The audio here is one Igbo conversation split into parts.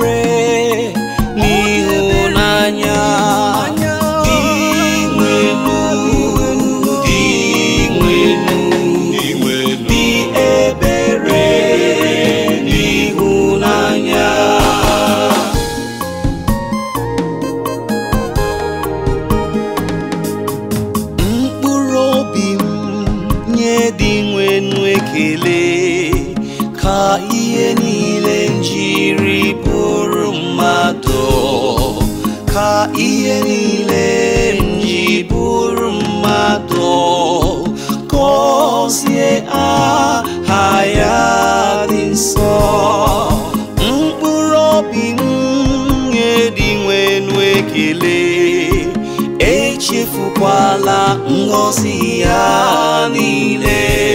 re ni hunanya ti nguyên nun ti nguyên nun ti nguyên ti ebere ni hunanya mkpụrụ obi m nye di nwe nwe kelee ka jiri bụrụ mmadụ ka ihe niile m bụrụ mmadụ aha ya dị nsọ mkpụrụ obi m dị nwenu ekele echefukwala ngọzi ya niile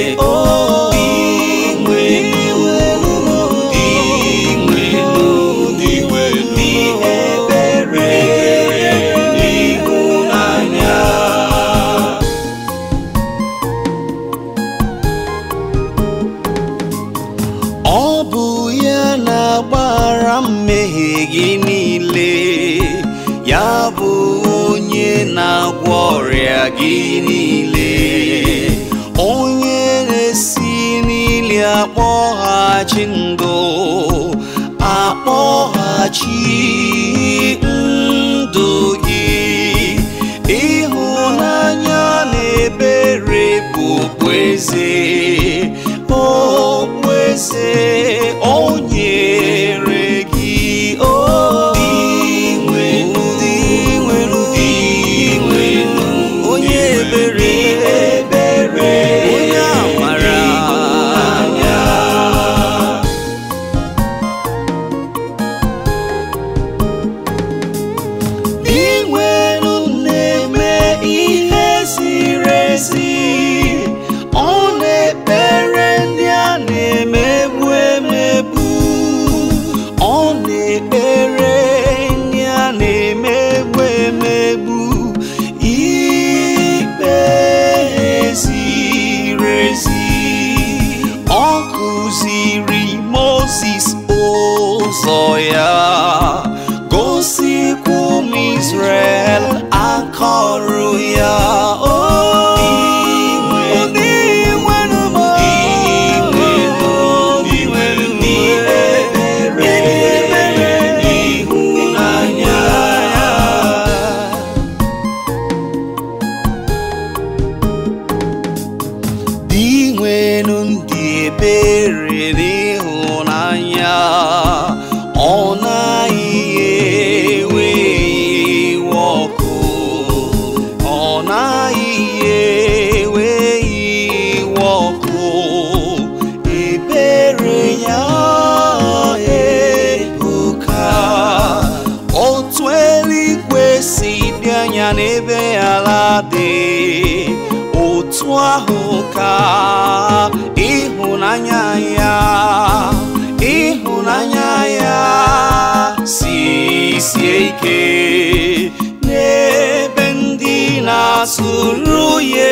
gị niile ya bụ onye na-agwọ ọrịa gị niile onye na-esi n'ili akpọghachi ndụ akpọghachi ndụ gị ịhụnanya na ebere bụ okpueze okpueze onye zoya gosi kum Israel akoruya oh Di nwenun di ebere na-esi anya n'ebe ala dị otu ahụ ya ya si sieke nebendina suruye